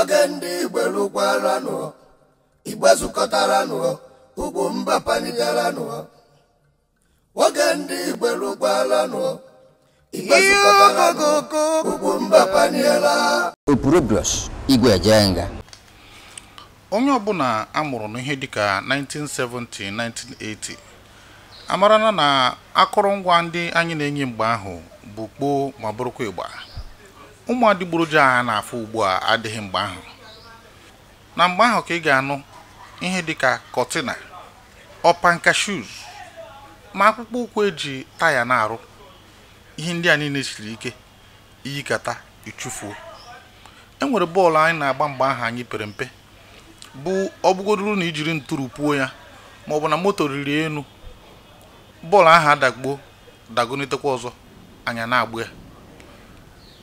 oge ndị igbe lụkwaranụ igbe nụọ ugwu mba nụọ. oge ndị igbe lụkwaranụ igbe zukọtaranụ ugwu mba paniela opurobios igwe jee nga onye ọbụla amụrụ n'ihe dịka 1970 1980 amarana na akụrụngwa ndị anyị na-enye mgbe ahụ bụ kpoo ma bụrụkwa ịgba ụmụ adịgboroja a na-afụ ugbu a adịghị mgbe ahụ na mgbe ahụ ka ị ga-anụ ihe dịka kọtina ọpanka shuz ma akpụkpọ ụkwụ eji taya na-arụ ihe ndị a niile siri ike iyikata ichufuo e nwere bọọlụ anyị na-agba mgbe ahụ anyị pere mpe bụ ọbụgodoro na ijiri ntụrụ puo ya ma ọ bụ na moto riri elu bọọlụ ahụ adagbuo dagonetekwa ọzọ anya na-agba ya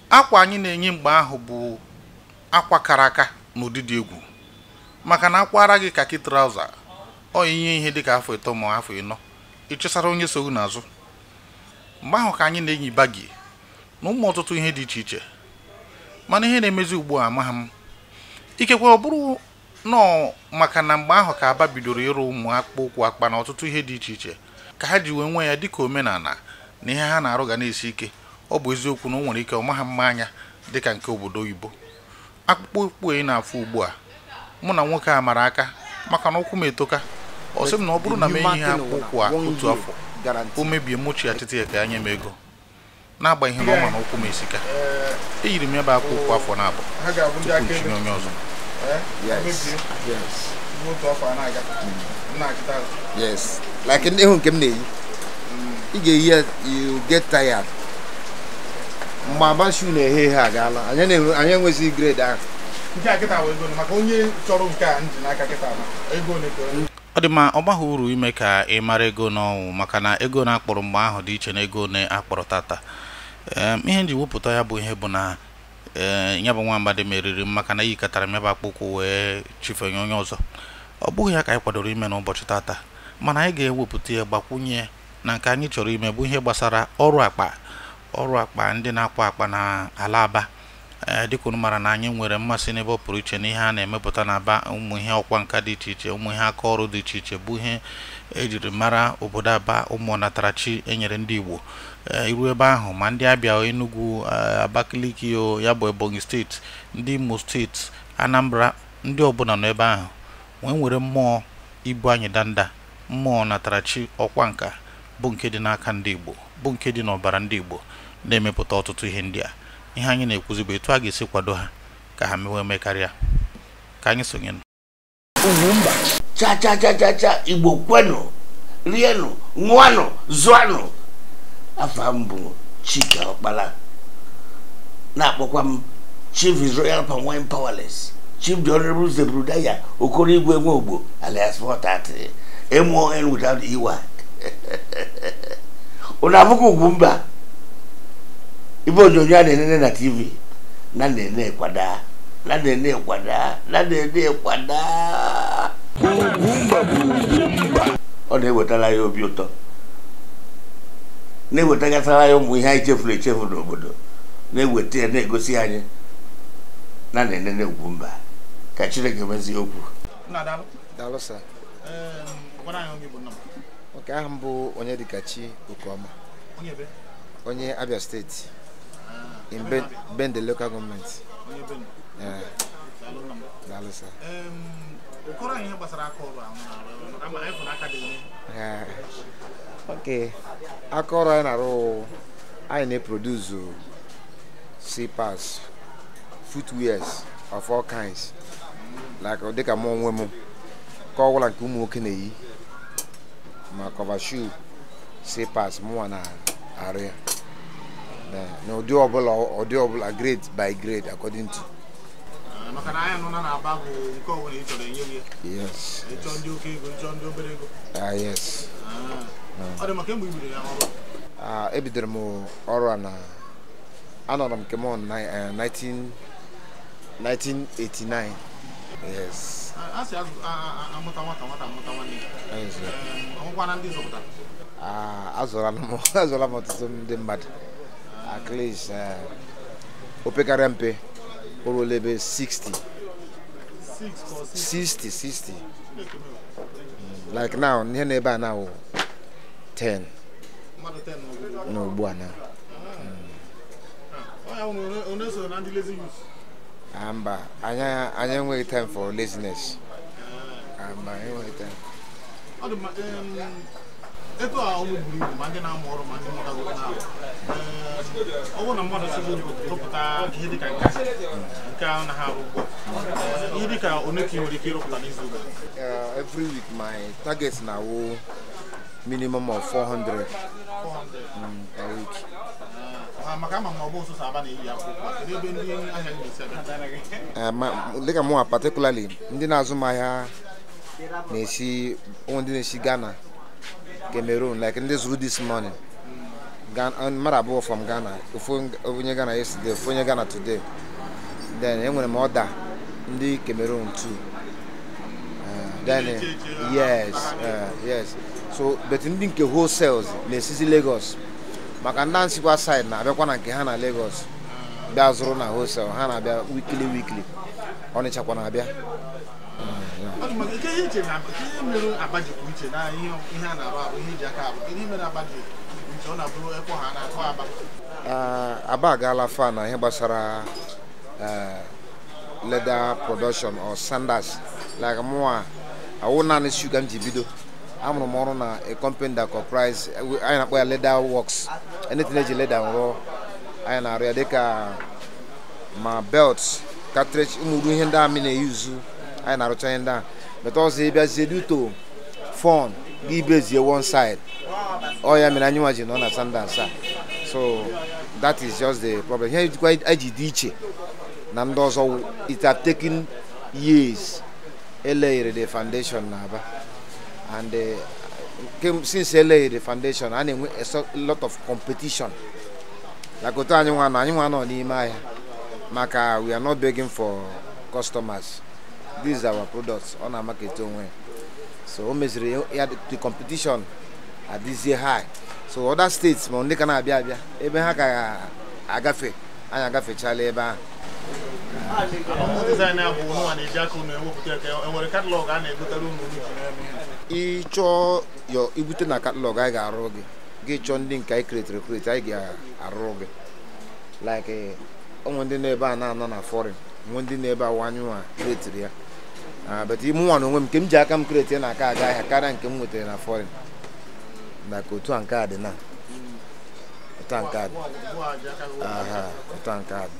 akwa anyị na-enye mgbe ahụ bụ akwa kara aka na dị egwu maka na akwara gị kakị trauza ọ inye ihe dịka afọ ịtọ ma afọ ịnọ ịchụsara onye sogbu n'azụ mgbe ahụ ka anyị na-enyi bagi na ụmụ ọtụtụ ihe dị iche iche mana ihe na-emezi ugbu a amaghị m ikekwe ọ bụrụ nọọ maka na mgbe ahụ ka aba bidoro ịrụ ụmụ akpụkpọ ụkwụ akpa na ọtụtụ ihe dị iche iche ka ha ji wee nwee ya dịka omenala na ihe ha na-arụ ga na-esi ike ọ bụ eziokwu na o nwere ike ọ maha mma anya dị ka nke obodo oyibo akpụkpọ ụkpụ ị na-afụ ugbu a mụ na nwoke a mara aka maka na ụkwụ m etoka ọ sị m na ọ bụrụ na m enyi ha ụkwụ a otu afọ o mebie mmochi atịtị ya ka anya m ego na ihe na ọ ma na ụkwụ m esika eyiri m ebe bụ akpụ ụkwụ afọ na-abụ tupu ntinye onye ọzọ nke m na-eyi ị ga-eyi ya you get tired mgbe abanshu na-eghe ha agaala anyị enweghịzi grade ahụ ọ dị mma ọ gbaghị uru ime ka ị mara ego n'ọnwụ maka na ego na-akpọrọ mgbe ahụ dị iche na ego na-akpọrọ tata ihe nji wepụta ya bụ ihe bụ na ya bụ nwa mgbada meriri m maka na yikọtara m ebe akpụkwụ wee chifenye onye ọzọ ọ bụghị ya ka anyị kwadoro ime n'ụbọchị tata mana anyị ga-ewepụta ya gbakwunye na nke anyị chọrọ ime bụ ihe gbasara ọrụ akpa ọrụ akpa ndị na akpọ akpa na ala aba e, dịka unu mara na anyị nwere mmasị n'ebe ọ pụrụ iche na ihe a na-emepụta na aba ụmụ ihe ọkwa nka dị iche iche ụmụ ihe aka ọrụ dị iche iche bụ ihe ejiri mara obodo aba ụmụ ọnatarachi enyere ndị igbo e, iru ebe ahụ ma ndị abịa enugu e, abakaliki o ya bụ ebonyi steeti ndị imo steeti anambra ndị ọbụla nọ ebe ahụ wee nwere mmụọ ibu anyị danda mmụọ natarachi ọkwa nka bụ nke dị n'aka ndị Igbo bụ nke dị n'ọbara ndị Igbo na-emepụta ọtụtụ ihe ndị a ihe anyị na-ekwuzi bụ etu a ga-esi kwado ha ka ha mewe eme karịa ka anyị sonye nọ. cha mba. cha cha cha Igbo kwenụ rienụ ṅụanụ zụanụ afọ mbụ bụ Chike ọkpala na-akpọkwa m unu abụghị ugwu mba ibe onyonyo a na-enene na tv na na-ene kwada na na-ene kwada na na-ene kwada ọ na-ewetara ya obi ụtọ na-ewetagasara ya ụmụ ihe anyị chefuru echefu n'obodo na-eweta ya na-egosi anyị na na-enene ugwu mba ka chineke mezie okwu nke ahụ mbụ Onyedikachi Okeoma onye Abia steeti in Bende local gọọmenti ok aka anyị na-arụ anyị na eproduzu slippers footwears of all kinds like dịka mụ onwe m ka ọ bụla nke ụmụ nwoke na-eyi ma cover shoe slippers mụnwa na-arụ ya na ụdị ọbụla ụdị ọbụla grade by grade according to ah, maka na anya nọ na na-aba bụ nke ọbụla ị chọrọ enye ya ịchọ ndị oke ego ịchọ ndị obere ego ah, yes ah. ọ dị maka mgbe ibidoro ya ọrụ ebidoro m ọrụ a na anọrọ m kemon eh, 1989 yes asị amụta nwata nwata amụta nwanne ndị azụrụla m ọtụtụ ndị mmadụ at least eh, mpe o ruola ebe 60 60 60 like now ihe n'ebe a na 10 n'ugbu a na onye so na ndị Ah, mba anya enweghị time for laziness ah, mba enweghị time ego a ọnwụ buru ibu ma ndị na-amụ ọrụ ma ndị mụtago na ọ bụrụ na mmadụ sịrị oyibo rụpụta ihe dịka nke nke ahụ na ha arụ ugbu a ihe dịka one ka ị nwere ike ịrụpụta n'izu ụka eh, every week my target na-awụ minimum of 400 mm, per week dịka mụnwa patikulali ndị na-azụ m ahịa na-esi ndị na-esi Ghana Cameroon like ndị zuru this morning mmadụ abụọ from Ghana ofu onye Ghana yesterday ofu onye Ghana today then enwere m ọda ndị Cameroon tu eh, then yes eh, yes so bet ndị nke wholesales na-esizi Lagos maka ndị ansikwa saịdị na-abịakwa na nke ha na Lagos bịa zụrụ na hostel ha na-abịa wikili wikili ọnịchakwa na-abịa aba agaala fa na ihe gbasara e, leather production or sanders like mụwa awụ naanị shuga m ji bido amụrụ m ọrụ na a company that comprise anyị na-akpọ ya leather works ene tene dzi le ɖaŋrɔ aya na ria deka ma belt cartridge umudu ihe ndị a mi na-eyuzu aya na-arụcha ihe ndị a meta ọzọ ịbịa zeduto fon gị ibezie one side ọ oh, ya mere anyị nwa ji nọ na sandans a so that is just the problem ihe jikwa eji dị iche na ndị ọzọ it have taken years eleghere the foundation na aba and uh, since LA the foundation a na-enwe a lot of competition like otu anyị nwa nwa n'ime ahịa maka we are not begging for customers these are our products ọ na market onwe so o meziri ya the competition year high so other states ma ndị ka na-abịa abịa ebe ha ka agafe anyị agafechala ebe ahụ Ị ịchọọ ibute na katalọg anyị ga-arụ gị gị chọọ ndị nke anyị kretiri kreti anyị ga arụ gị like onwe ndị na-ebe a na-anọ na fọrin nwe ndị na-ebe awanyewa kretiri ya but ime nwa na onwe m nke m ji aka m kreti na aka aga ahịa karịa nke m nwetara na fọrin na ka otu a nke a dị na otu a nke a otu a nke a dị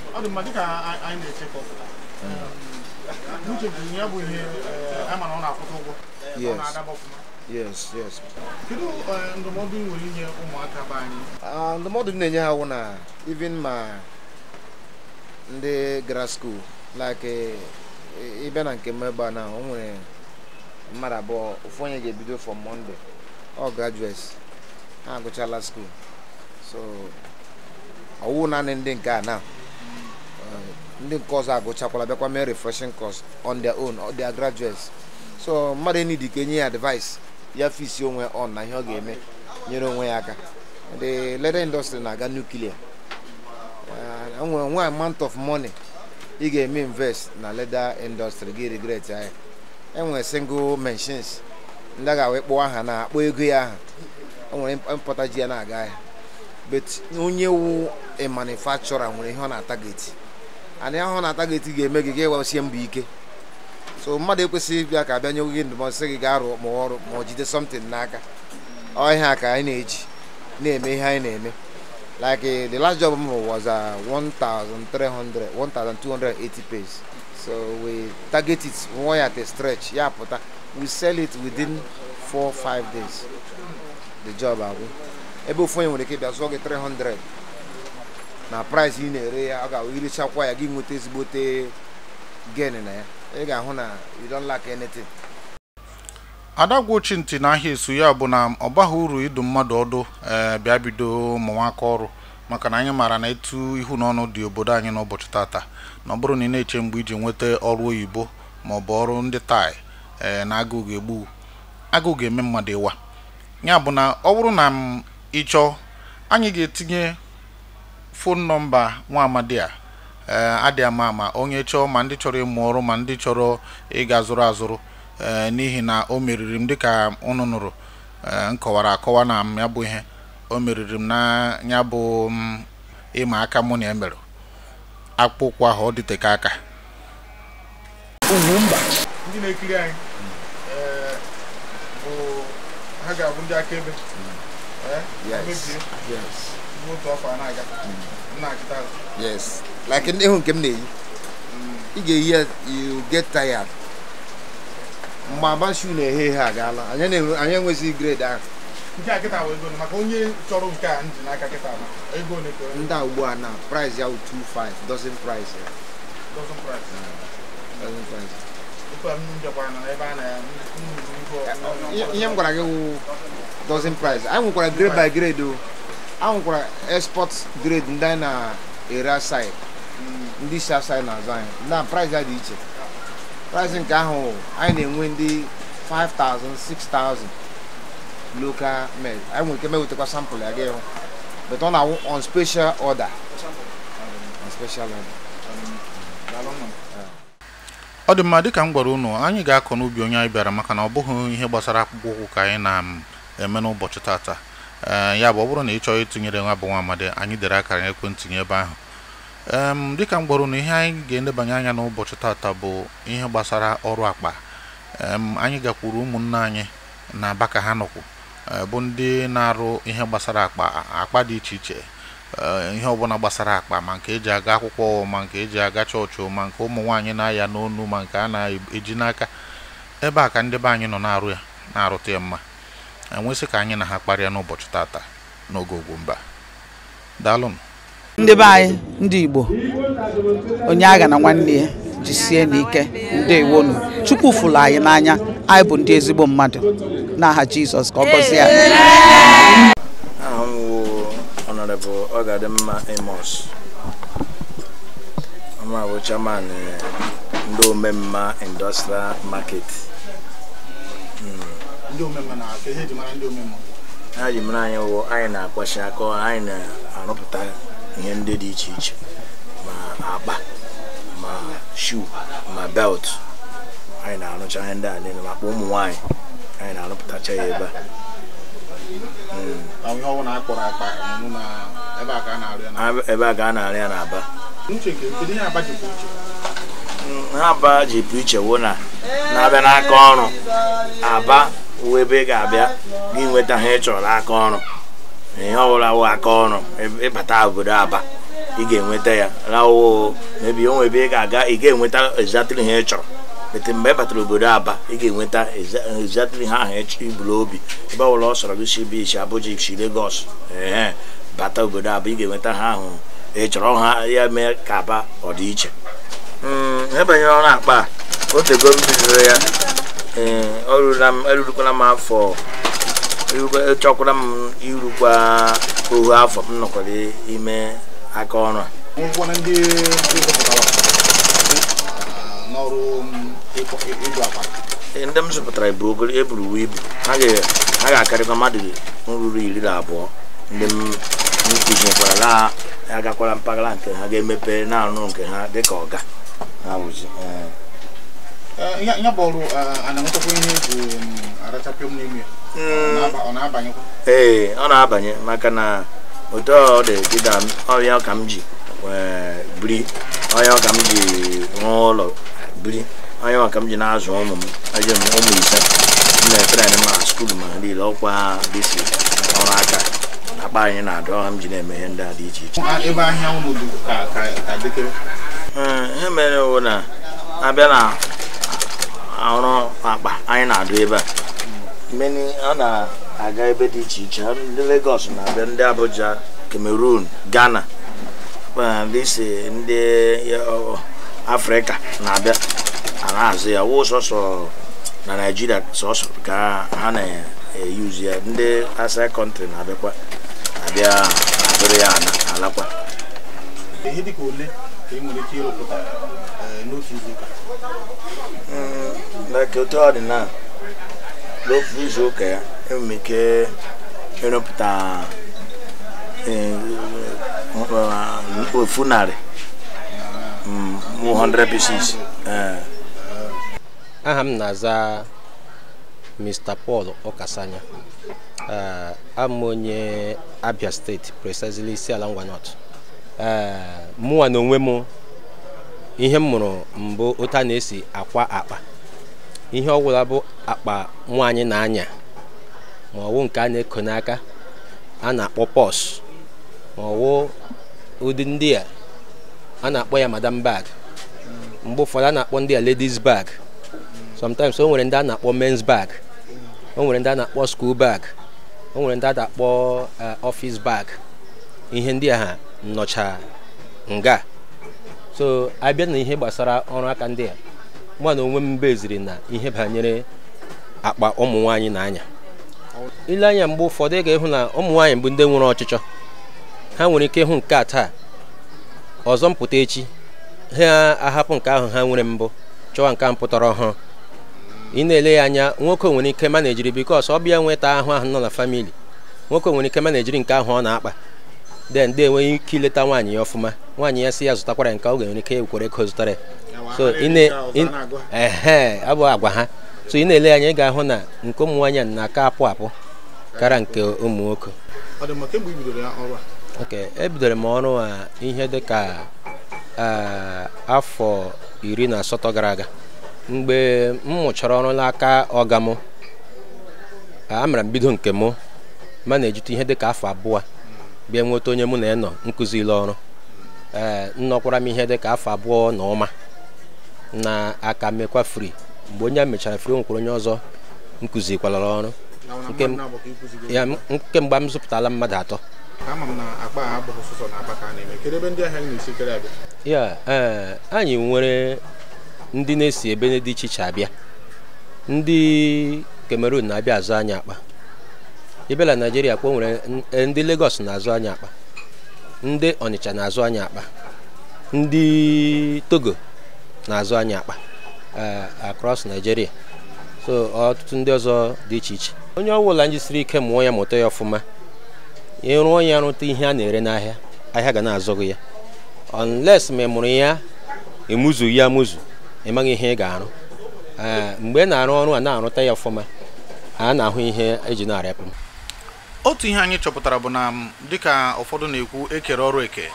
ọ dị mma dịka anyị na-echekọ hmm. uche ji ya bụ ihe eh, a mara ọ na-akwụta ụgwọ ọ na-adaba ọfụma yes yes kedu eh, ndụmọdụ nwere inye ụmụaka be anyị ah, ndụmọdụ m na-enye ha wụ na even ma ndị gara skuul like ịbịa eh, na nke m a na o nwere mmadụ abụọ ofu onye ga-ebido for Monday ọ graduates ha agụchala skuul so ọwụ naanị ndị nke a na ndị nke ọzọ agụchakwala bịakwa mee refreshing course on their own or their graduates so mmadụ enyi dị ka enye ya advice ya fisi onwe on na ihe ọ ga-eme nyere onwe ya aka the leather industry na-aga nuclear uh, nwere nwa amount of money ị ga-eme invest na leather industry gị regret ya enwere single machines ndị a ga aha na akpọ ego ya aha o nwere mpụta ji ya na-aga ahịa but onye wu a manufacturer nwere ihe ọ na-atageti anyị ahụ na-ata gị ga-eme gị ga ịwasie mbọ ike so mmadụ ekwesịghị ịbịa ka abịa nye gị ndụmọdụ sị gị gaa rụọ ma ọrụ ma ọ jide something n'aka ọ ihe a ka anyị na-eji na-eme ihe anyị na-eme like the last job m was uh, 1300 1280 pages so we target it one at a stretch ya pụta we sell it within 4 5 days the job agwụ ebe ofu onye nwere ike bịa zụọ gị 300 na price ị na-ere ya ọ ga irichakwa ya gị nweta ezigbote gain na ya ị ga-ahụ na you don't lack anything adagwu gwochi ntị esu ya bụ na ọ baghị uru ịdụ mmadụ ọdụ ee bịa bido ụmụnwaka ọrụ maka na anyị maara na etu ihu na dị obodo anyị n'ụbọchị tata na ọ bụrụ na ị na-eche mgbe iji nweta ọrụ oyibo ma ọ bụ ọrụ ndị tai e, na agụụ ga-egbu agụụ ga-eme mmadụ ịwa ya bụ na ọ bụrụ na m ịchọọ anyị ga-etinye fon nọmba nwa amadi a eh, adị ama ama onye chọọ ma ndị chọrọ ịmụ ọrụ ma ndị chọrọ ịga zụrụ azụrụ eh, n'ihi na o meriri m dịka unu nụrụ m eh, akọwa na m ya bụ ihe o meriri m na ya bụ mm, ịma aka mụ na ya e mere akpụkpọ ahụ ọ dịteka aka ha ga-abụ ndị akaebe mm. na-akitaghi. yes like ndị nke m na-eyi ị ga-eyi ya you get tired mgbe agba shu na-eghe ihe agaala anyị enweghịzi grade ahụ nke a ugbu a na price ya 25 dozen price ya ihe m gwara gị wụ dozen price anyị grade by grade o ahụkwara export grade ndị anyị na-ere aside ndị si aside na-azụ anyị na price ya dị iche price nke ahụ anyị na-enwe ndị 5,000 6,000 local made anyị nwere ike mewetakwa sample ya gị but ọ na-awụ on special order on special order ọ dị mma dịka m gwara unu anyị ga-akọ n'ubi onye anyị bịara maka na ọ bụghị ihe gbasara akpụkpọ ụkwụ ka anyị na-eme n'ụbọchị tata Eh, ya bụ ọ bụrụ na ị chọọ ịtụnyere nwa bụ nwa amadi anyị dere akara ekwentị gị ebe ahụ dịka m gwara na ihe anyị ga-edebanye anya n'ụbọchị tata bụ ihe gbasara ọrụ akpa anyị gakwuru ụmụnne anyị na aba ka ha nọkwu eh, bụ ndị na-arụ ihe gbasara akpa akpa dị iche iche eh, ihe ọbụla gbasara akpa ma nke eji aga akwụkwọ ma nke eji aga chọọchị ma nke ụmụ nwaanyị na-aya n'onu ma nke a na-eji n'aka ebe a ka ndị be anyị nọ na-arụ ya na-arụta ya mma enwesị ka anyị na ha kparịa n'ụbọchị tata n'oge Ugwumba daalụnụ ndị be anyị ndị Igbo onye agha na nwanne ya jisie n'ike ndewonu chukwu fụlụ anyị n'anya anyị bụ ndị ezigbo mmadụ n'aha Jizọs ka ọ gọzie anyị eh, ndị omemma industrial market ndị omemme ha ji mara anyị wụ anyị na-akwachi akọ, anyị na-arụpụta ihe ndị dị iche iche ma akpa ma shu, ma belt anyị na-arụcha ihe ndị a niile maka ụmụ nwanyị, anyị na-arụpụtacha ya ebe a ebe a ka a na-arị ya n'aba ha aba ji pụ iche wụ na na-abịa n'aka ọrụ aba uwe ebe ị ga-abịa gị nweta ha ị aka ọrụ ihe ọbụla wụ aka ọrụ ịbata obodo aba ị ga-enweta ya rawo mebi onwe ebe ị ga-aga ị ga-enweta ezatịrị ha ị chọrọ ete mgbe ị batara obodo aba ị ga-enweta ezatịrị ha ahụ iburu obi ebe ọbụla ọ sọrọ gị si bi isi abụja si legos ee bata obodo aba ị ga-enweta ha ahụ ị chọrọ ha ya mee ka aba ọdịiche hmm, ebanyere ọrụ akpa a otego m ya erurukwala eh, m afọ chọkwara m irukwa ohu afọ m nọkwara ime aka ọrụ a eh, ndị m zụpụtara bụ ogolo eburu ibu ha ga-akarịkwa mmadụ ruru iri na abụọ ndị m kụzinyekwara na agakwara mpaghara nke ha ga-emepe na-arụ nke ha dịka ọga ha eh. ya bụrụ anamtakwa ihe egwu arachapịọ m ọ na-abanyekwa ee ọ na-abanye maka na otu ọ dị dịda ya ka m ji biri ọhịa ka m ji ụlọ biri ya ka m ji na-azụ ụmụ m eji m ụmụ ise m na ma ma niile ọkwa dịsi ka aka akpa anyị na-adụ ọha m ji na-eme ndị a dị iche iche ebe ahịa ka na na ọrụ akpa anyị na-adụ ebe a mmeni a na-aga ebe dị iche iche ndị Lagos na-abịa ndị Abuja Cameroon Ghana uh, ndị ndị uh, Afrịka na-abịa ana azụ ya wụ sọsọ na Naịjirịa sọsọ ka ha na-eyuzu ya ndị asa kọntrị na-abịakwa abịa abịrị ya alakwa ihe dịka ole ka ị nwere ike ịrụpụta uh, n'otu izu ụka like otu ọ dị na n'ofu izu ụka ya enwere m ike ịrụpụta e, e, ofu narị 100 mm, aha m na-aza Mr. Paul Okasanya am onye Abia steeti precisely isi ala Ngwa North mụnwa na onwe m ihe m mụrụ mbụ ụta na-esi akwa akpa ihe ọbụla bụ akpa nwaanyị na-anya ma ọwụ nke a na-eko n'aka a na-akpọ pọs ma ọwụ ụdị ndị a na-akpọ ya madam bag mgbe ụfọdụ a na-akpọ ndị a ladies bag sometimes o nwere ndị a na-akpọ men's bag o nwere ndị a na-akpọ skuul bag o nwere ndị a na-akpọ eh, office bag ihe ndị a ha nga so bịa na ihe gbasara ọrụ aka ndị a mụ na onwe m beziri na ihe banyere akpa ụmụ nwaanyị na anya ile anya mgbe ụfọdụ ị ga-ịhụ na ụmụ nwaanyị bụ ndị nwere ọchịchọ ha nwere ike ịhụ nke a taa ọzọ mpụta echi ha ahapụ nke ahụ ha nwere mbụ chọwa nke a mpụtara ọhụrụ ị na-ele ya anya nwoke nwere ike manejiri bikos ọ bịa nweta ahụ ahụ nọ na famili nwoke nwere ike manejiri nke ahụ ọ na-akpa then ndị enweghị ike ileta nwaanyị ya ọfụma nwaanyị ya sị ya zụtakwara nke ọ ga-enwere ike kwere ego zụtara so ee abụ agwa ha so ị na-ele anya ị ga-ahụ na nke ụmụ nwaanyị na-aka apụ apụ kara nke ụmụ nwoke ok ebidoro m ọrụ a ihe dị ka afọ iri na asatọ gara aga mgbe m mụchara ọrụ n'aka ọga m amara m bido nke mụ ma na-ejute ihe dị ka afọ abụọ bịa nweta onye mụ na ya nọ nkụzili ọrụ ee nnọkwara m ihe dị ka afọ abụọ na ọma na-aka mekwa fri mgbe onye a mechara fri nwekwara onye ọzọ nkụzikwalara ọrụ mgbe m zụpụtala mmadụ atọ ya ee anyị nwere ndị na-esi ebe dị iche iche abịa ndị Cameroon na-abịa azụ anyị akpa ibela naijiria kpa nwere e, ndị Lagos na-azụ anyị akpa ndị Ọnịcha na-azụ anyị akpa ndị Togo na-azụ anyị akpa e, across Nigeria so ọtụtụ ndị ọzọ dị iche iche onye ọbụla siri ike mụọ ya mụta ya ọfụma ịrụọ ya rụta ihe a na-ere n'ahịa ahịa ga na-azọgo ya unless ma ị mụrụ ya emuzu ya amụzụ ị maghị ihe ị ga-arụ e, mgbe ị na-arụ ọrụ a na-arụta ya ọfụma a na-ahụ ihe eji na-arịapụ otu ihe anyị chọpụtara bụ na dịka ụfọdụ na-ekwu ekere ọrụ eke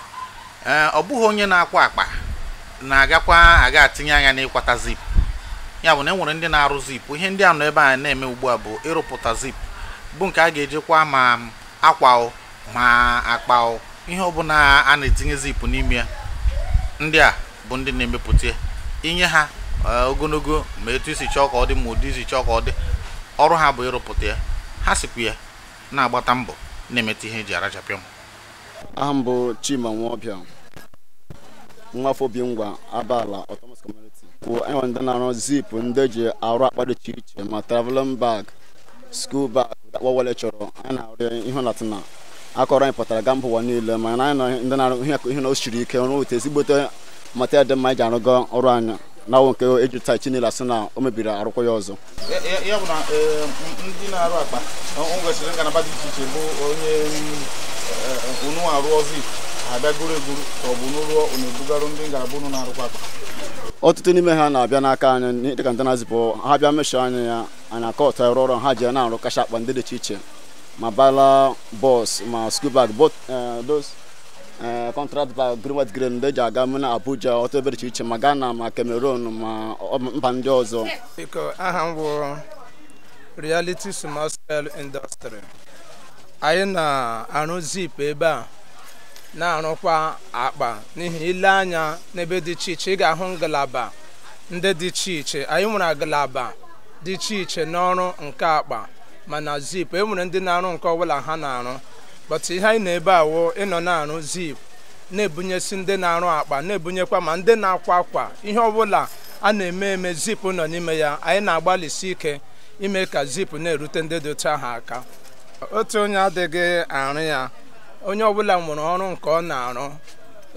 ee ọ bụghị onye na-akwa akpa na-agakwa aga atinye anya n'ịkwata zip ya bụ na enwere ndị na-arụ zip ihe ndị a nọ ebe a na-eme ugbu a bụ ịrụpụta zip bụ nke a ga ejikwa ma akwa ma akpa ihe ọbụla a na-etinye zip n'ime ya ndị a bụ ndị na-emepụta inye ha ogologo ma etu isi chọọ ka ọ dị ma ụdị isi chọọ ka ọ dị ọrụ ha bụ ịrụpụta ya ha sikwu ya na-agbata mbọ na-emeta ihe eji arachapịa m aha mbụ bụ Chima Nwaọbịa nwafọ bi ngwa abala autonomous community kwụ enwe ndị na-arụ zip ndị eji arụ akpa dị iche iche ma traveling bag skul bag akpọ chọrọ anyị na-arụ ihe latina akọrọ anyị pụtara ga mba ụwa niile ma anyị na ndị na-arụ ihe na o siri ike ọrụ otu ezigbote material dị mma iji ji arụgo ọrụ anyị na-awụ nke ejuta chinela sị na o mebiri arụkwọ ya ọzọ ya bụ na ndị na-arụ akpa nwesịrị ngalaba dị iche iche bụ onye unu arụ ọzọ abịa goro egoro ka ọ bụ n'ụlọ na-ebugarụ ndị ngalaba unu na-arụkwa akpa ọtụtụ n'ime ha na-abịa n'aka anyị dịka ndị na-azịpụ ha bịa meshọ anyị ya anyị aka ọtọ ọrụ ọrụ ha ji na-arụ kacha akpa ndị dị iche iche ma bala bọs ma skul bag both eh, those ee eh, kọntraktị ba greenwet green ndị ji aga m na abuja ọtụtụ ebe iche iche ma ghana ma cameroon ma mba ndị ọzọ biko aha m bụ reality small scale industry anyị na-arụ zip ebe a na-arụkwa akpa n'ihi ile anya n'ebe dị iche iche ị ga-ahụ ngalaba ndị dị iche iche anyị nwere ngalaba dị iche iche n'ọrụ nke akpa mana zip e nwere ndị na-arụ nke ọbụla ha na-arụ but ihe anyị na-ebe awụ ịnọ na-arụ zip na-ebunyesi ndị na-arụ akpa na-ebunyekwa ma ndị na-akwa akwa ihe ọbụla a na-eme eme zip nọ n'ime ya anyị na-agbalịsi ike ime ka zip na-erute ndị dị otu ahụ aka otu onye adịghị arụ ya onye ọbụla nwere ọrụ nke ọ na-arụ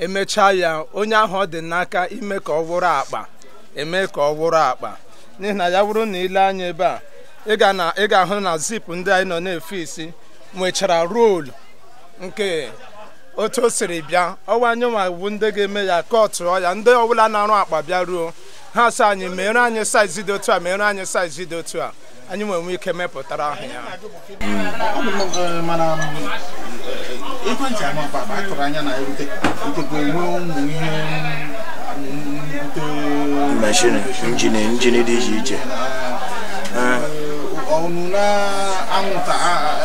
emechaa ya onye ahụ ọ dị n'aka ime ka ọ wụrụ akpa eme ka ọ wụrụ akpa n'ihi na ya bụrụ na ile anya ebe a ị ga-ahụ na zip ndị anyị nọ na-efe isi nwechara roolu nke otu o siri bịa ọwa anyanwa bụ ndị ga-eme ya ka ọ ọya ndị ọbụla na-arụ akpa bịa ruo ha sị anyị mere anyị saizi dị otu a mere anyị saizi dị otu a anyị nwere ike mepụtara ahụ ya um, ekwentị amapa um, injin dị iche iche um, anwụnta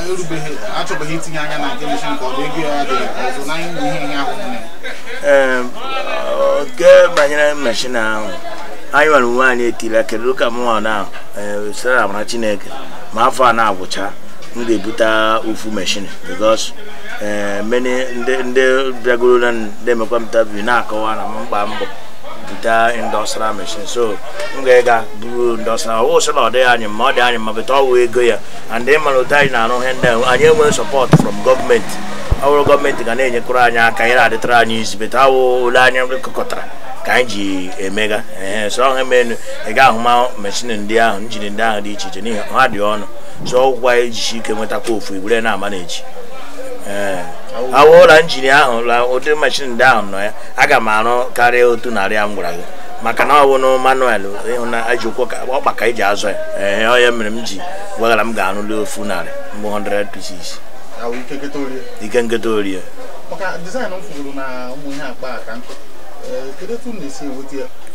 erubeghị achọbeghị itinye anya na nke meshin nke ọ bụ ego ya dị ọzọ n'anya bụ ihe ihe ahụ nne nke banyere meshin ahụ anyị nwere onwe anyị etila kedu ka mụnwa na eh, sara amara chineke ma afọ a na-agwụcha m ga-ebute ofu meshin because eh, many ndị bịagoro na ndị emekwa mtabi na-akọwa na mkpa mbọ weta industrial machine so m ga ega buru industrial ọwụ sị na ọ dịghị anyị mma ọ dị anyị mma bụta ọwụ ego ya and ị mara otu anyị na-arụ ihe ndị anyị enweghị sọpọt from gọọmenti ọ bụrụ gọọmenti ga na-enyekọrọ anyị aka anyị na-adịtara anyị izi bụta awụ ole anyị kụkọtara ka anyị ji emega ee so ọha menu ị ga ahụma mechin ndị ahụ njin ndị ahụ dị iche iche n'ihi ha dị ọnụ so ọgwụkwa ejisi ike nwetakwa ofu igwere na ama na-eji ee awụla njin ahụ la ụdị mashin ndị ahụ nọ ya aga m arụ karịa otu narị a m gwara gị maka na ọ bụ na manuel ịhụnaji ụkwụ ọkpa ka eji azụ ya ee ọ ya mere m ji gwagara m ga-arụli ofu narị mbụ 100 pieces ike nketa orie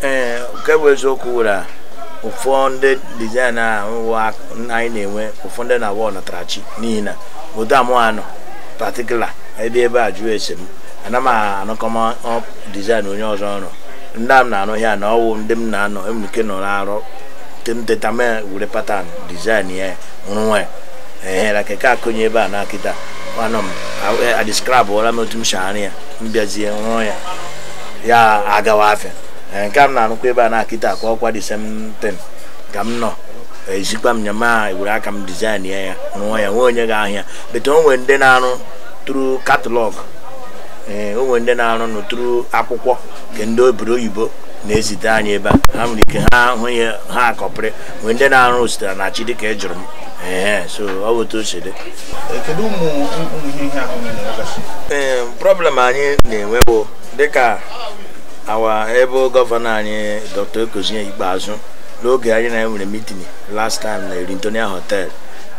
ee nke bụ eziokwu were ụfọdụ ndị dizain a anyị na-enwe ụfọdụ ndị na-awa ọnatarachi n'ihi na otu amụ anọ patikula ebe ebe a jụrụ esi m ana m anụkọma dizaịn onye ọzọ ọrụ ndị a m na-anụ ya na ọwụ ndị m na-anọ emike nọ na-arụ teta mee were patan dizaịn ya nwa ehere keke akụnye ebe a na akịta anọ m adiskrabụla m otu m shara ya m bịazie rụọ ya ya agawa afịa nke a m na-anụkwa ebe a na akịta ka ọkwa disemtin ka m nọ ezikwa m nyama e were aka m dizaịn ya ya rụọ ya nwee onye ga ahịa bete onwe ndị na anụ through catalog ee eh, onwe ndị na-arụ nụ akwụkwọ nke ndị obodo oyibo na-ezite anyị ebe a ha nwere ike ha hụ ya ha akọpịrị nwee ndị na-arụ sitere na chi dịka ị e jụrụ m ee eh, so ọ bụ otu o si ee eh, problem anyị na-enwe bụ dịka awa ebe gọvanọ anyị dr okozie ikpeazụ n'oge anyị na nwere mitin last time na Erintonia hotel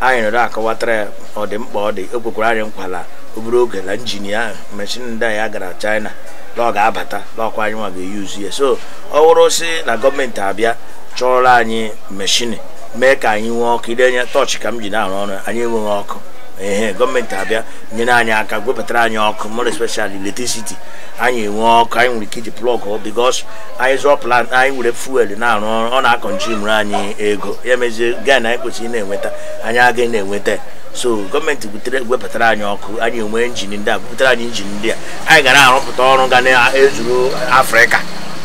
anyị nọrọ akọwatara ya ọdịmkpa ọ dị o kwekwara anyị nkwala obere oge na injinia ahụ mechin ndị ya gara china na ọ ga-abata n'ọkwa anyị nwa ga-eyuzu ya so ọ wụrụ si na gọọmenti abịa chọrọ anyị meshini mee ka anyị nwee ọkụ ide anya tọọchị ka m ji na-arụ ọrụ anyị enweghị ọkụ ehe gọọmenti abịa nyere anyị aka gwepụtara anyị ọkụ more especially electricity anyị enwee ọkụ anyị nwere ike iji plọg because anyị zụọ plan anyị were fuel na-arụ ọrụ ọ na-akọnjimụrụ anyị ego ya mezie gain anyị kwesịrị na-enweta anyị agaghị na-enweta so gọọmenti butere wepụtara anyị ọkụ anyị enwe injin ndị a bupụtara anyị injin ndị a anyị gara arụpụta ọrụ ga na-ezuru afrịka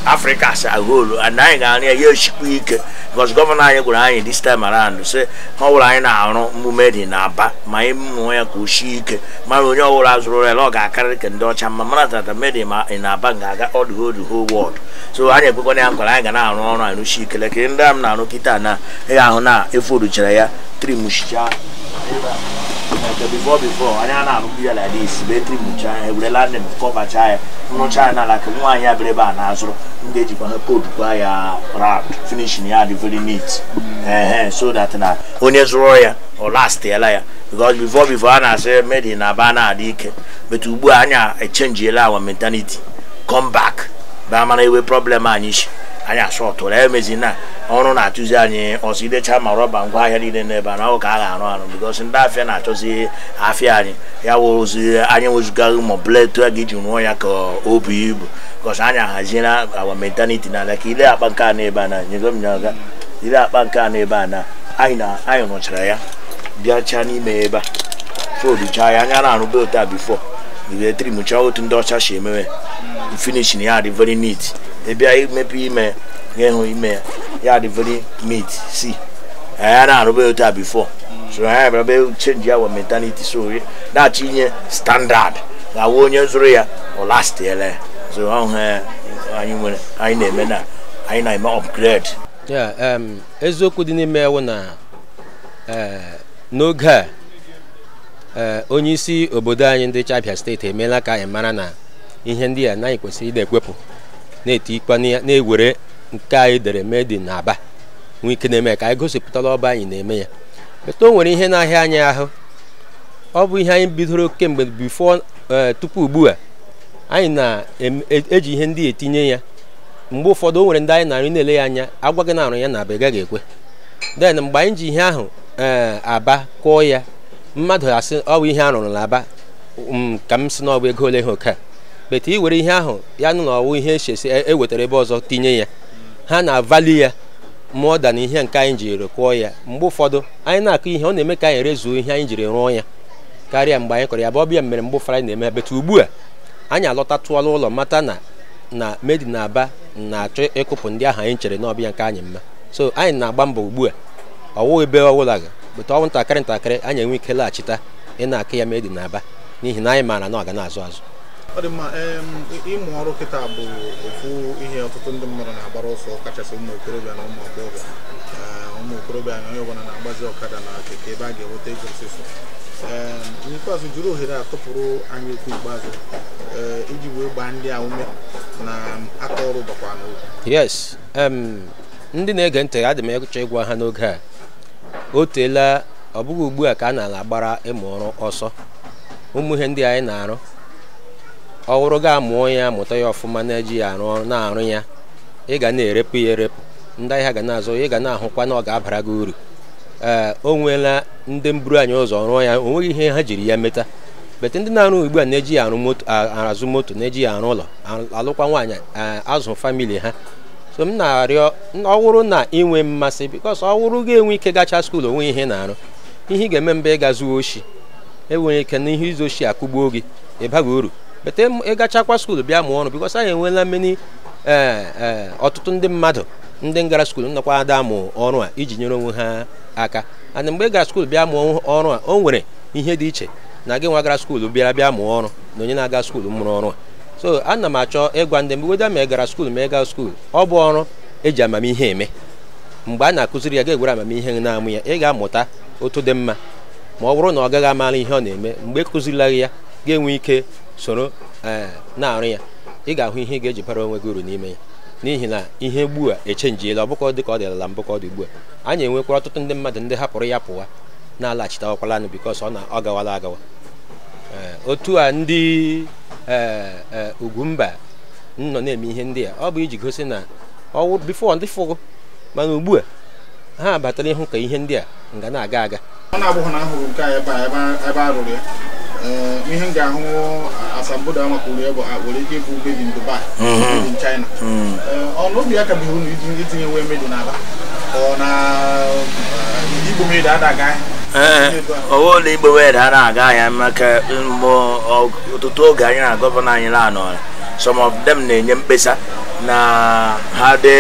afrịka si agolu and anyị ga-arụ ya ya echikwa ike because gọvanọ anyị gwara anyị this time around sị ha ọbụla anyị na-arụ mmume dị n'aba ma anyị mụọ ya ka o ike mara onye ọbụla zụrụ ya na ọ ga-akarịrị ka ndị ọcha mma mana tata medi ma ị na-aba ga-aga all the whole so anyị ekwekwana ya nkwara anyị ga na-arụ ọrụ anyị rụsi ikele kiri ndị a m na-arụ kịta na ị ahụ na eforuchara ya trimchicha Uh, before before anya na-anụ ya like this betri mụcha ya ewere landin kọbacha ya nrụcha ya n'ala ka nwaanyị abịara ebe a na-azụrụ ndị ejikwa ha podkwa ya round finishin ya dị very neat ehe eh, so that na onye zụrụ ya ọ lastiela ya because before before a na-asị made na aba na-adị ike but ugbu a anya echenjiela our mentality come back ba mana ewe problem anyị isi anyị asọtụrụ emezi na ọrụ na-atụzi anyị ọsọ idecha ma rọba ngwa ahịa niile n'ebe a na ọ ka a ga-arụ arụ bikosi ndị afịa na-achọzi afịa anyị ya wụrụzi anyị wezụgaghị ma ọbụla a ga-eji rụọ ya ka o bu ibu bikosi anyị ahaziela awa mentaliti n'ala ka ile akpa nke a n'ebe a na nyego m nyaga ile akpa nke a n'ebe a na anyị rụchara ya bịacha n'ime ebe a fodicha ya anya na arụ otu a bifo ga-etiri mụchaa otu ndị ọcha si emewe finishin ya dị very neat ebi bịa imepe ime ga-ehụ ime ya ya dị very meat si anyị na-arụba otu a before so anyị bịara change our mentality so na-achọ inye standard na awụ onye zụrụ ya ọ lastiela ya so ọhụ eh, anyị nwere anyị na-eme na anyị na-eme upgrade ya eziokwu dị n'ime ewu na eh, n'oge a eh, onye isi obodo anyị ndị chabia steeti emeela ka anyị mara na ihe ndị a naghị kwesịrị ị na-ekwepụ na eti ikpe na-ewere nke anyị dere made dị Aba nwee ike na-eme ka anyị gosipụtala ọba anyị na-eme ya meta o nwere ihe na-ahịa anyị ahụ ọ bụ ihe anyị bidoro kemgbe bifo eh, tupu ugbu a anyị na-eji e, ihe ndị etinye ya mgbe ụfọdụ o nwere ndị anyị na-arụ na-ele ya anya gị na arụ ya na aba ị gaghị ekwe den mgbe anyị ji ihe ahụ eh, aba kụọ ya mmadụ asị ọ bụ ihe arụrụ n'aba um, ka m si na ọ bụ ego ole ha oke a bete i were ihe ahụ ya nụ na ọwụ ihe echesi ewetara ebe ọzọ tinye ya ha na-avali ya mụọ da na ihe nke anyị jiri kụọ ya mgbe ụfọdụ anyị na-akụ ihe ọ na-eme ka anyị rezuo ihe anyị jiri rụọ ya karịa mgbe anyị kọrọ ya bụ ọbịa mere mgbe ụfọdụ anyị na-eme bete ugbu a anyị alọtatụọla ụlọ mata na na medi na aba na-achọ ịkụpụ ndị ahụ anyị chere na ọbịa nke anyị mma so anyị na-agba mbọ ugbu a ọwụ ebe ọbụla bụta ọnwụ ntakịrị ntakịrị anyị enwe ike laghachita ị na-akụ ya medi na aba n'ihi na anyị maara na ọ ga na-azụ azụ ọ dị mma ịmụ ọrụ kịta bụ ofu ihe ọtụtụ ndị mmadụ na-agbara ọsọ kachasị ụmụ okorobịa na ụmụ agbọghọ ụmụ okorobịa na onye ọbụla na-agbazi ọkada na keke ebe a ga-enweta ego osisi n'ikpeazụ jiri ohere atụpụrụ anyị okwu ikpeazụ eh, iji wee gbaa ndị a ume na aka ọrụ gbakwa n'oge yes ndị na-ege ntị adị m ịchọ ịgwa ha n'oge a o teela ọ bụghị ugbu a ka a na-agbara ịmụ ọrụ ọsọ ụmụ ihe ndị anyị na-arụ ọ wụrụ gị amụọ ya mụta ya ọfụma na-eji ya arụ ọrụ na-arụ ya ị ga na-erepụ ya erepụ ndị ahịa ga na-azụ ị ga na-ahụkwa na ọ ga-abara gị uru ee o nweela ndị mburu anyị ụzọ rụọ ya o nweghị ihe ha jiri ya meta bete ndị na-arụ ugbu a na-eji ya azụ moto na-eji ya arụ ụlọ alụkwa nwaanyị azụ famili ha so m na-arịọ ọwụrụ na ịnwe mmasị bikos ọwụrụ ga-enwe ike gacha skuulu onwe ihe na-arụ ihe ị ga-eme mba ịga zuo oshi enwere ike na ihe izu oshi akụgbuo gị ịbaghị uru bete ịgachakwa skuulu bịa mụọ ọrụ bikos anyị enweela mmeni ee eh, eh, ọtụtụ ndị mmadụ ndị gara skuulu nnọkwa ada mụ ọrụ a iji nyere onwe ha aka ana mgbe ị gara skuulu bịa mụọ ọrụ a o nwere ihe dị iche na gị nwa gara skuulu bịara bịa mụọ ọrụ na onye na-aga skuulu mụrụ ọrụ a so ana m achọ ịgwa ndị mgbe weda ma ị gara skuulu ma ị gaa skuulu ọ bụ ọrụ eji amamihe eme mgbe a na-akụziri ya ga-egwere amamihe na-amụ ya ị ga-amụta otu dị mma ma ọ bụrụ na ọ gaghị amara ihe ọ na-eme mgbe e ya ga-enwe ike soro eh, na-arụ ya ị ga-ahụ ihe ị ga-eji bara onwe gị uru n'ime ya n'ihi na ihe ugbu a echenjiela ọbụkọ dị ka ọ ala mbụ ka ọ dị ugbu a anyị enwekwara ọtụtụ ndị mmadụ ndị hapụrụ ya pụwa na-alaghachitawakwalanụ bikos ọ na ọ gawala agawa eh, otu a ndị eh, ugwumba nọ na-eme ihe ndị a ọ bụ iji gosi na ọwụ bifo ndị fụgụ mana ugbu a ha batara ịhụ ka ihe ndị a nga na-aga aga ihe m ga-ahụ asambodo a maka uri ebe a nwere ike ịbụ mbebi n Dubai mbebi n China ọnụ obi ya ka bụ unu itinye nwe medo n'aba ọ na igbo medo adaga ọwụ na igbo medo adaga ya maka mgbe ọtụtụ oge anyị na gọvanọ anyị lanọ some of them na-enye mkpesa na ha dị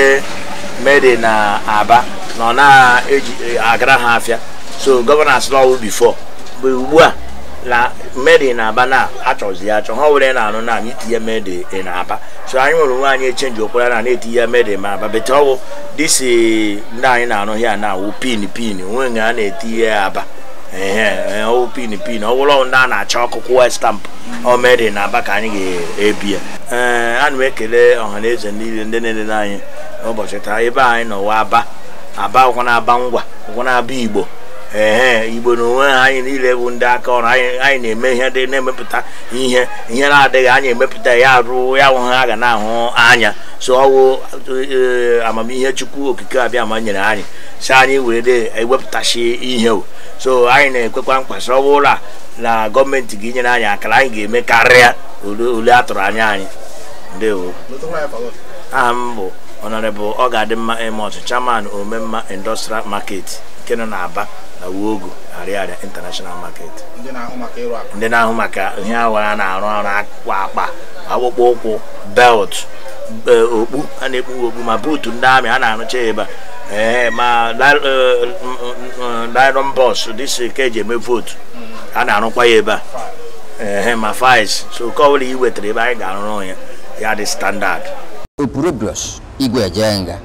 mede na aba na na-agara ha afịa so gọvanọ asịla ọwụ bifo mgbe ugbu a na mmeri na-aba na achọzi ya achọ ha were na-anụ na anyị tinye mmeri na-aba so anyị nwere onwe anyị echenji okwara na na-etinye mmeri ma aba bete ọwụ dịsi ndị anyị na-anụ ya na awụ pin pin onwe nga a na-etinye ya aba ọwụ pin pin ọ wụrụ ndị a na-achọ ọkụkụ westampụ ọmeri na aba ka anyị ga ebie ee ana m ekele ọha na eze niile ndị na-elele anyị ụbọchị taa ebe anyị nọwa aba aba ụkwụ na-aba ngwa ụkwụ na-aba igbo ee igbo na onwe ha anyị niile bụ ndị aka ọrụ anyị na-eme ihe dị na-emepụta ihe ihe na-adịghị anyị emepụta ya arụ ya hụghị ha ga na-ahụ anya so ọwụ e, amamihe chukwu okike abịa ma nyere anyị si anyị wee de ewepụtasị ihe o so anyị na-ekwekwa mkpa sọ ụlọ na gọọmenti gị nyere anyị akara anyị ga-eme karịa ole a tụrụ anya anyị ndewo aha m bụ honorable ọ ga-adị mma emot chairman omemma industrial market nke nọ n'Aba na Wogo Ariaria international market ndị na-ahụ maka ihe awa a na-arụ arụ kwa akpa akpụkpọ ụkwụ belt e, okpu a na-ekpu okpu ma buutu ndị amị a na-arụcha ebe a ee ma nylon bọs dịsị ka eji eme votu a na-arụkwa ya ebe a ee ma fis e, e so nke ọ bụla i wetara ebe anyị ga-arụrụ ya ya dị standard Epurobius Igwe Ajenga.